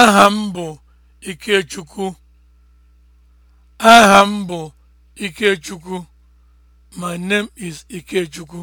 Aha m bụ Ikechukwu. Aha m bụ Ikechukwu. My name is Ikechukwu.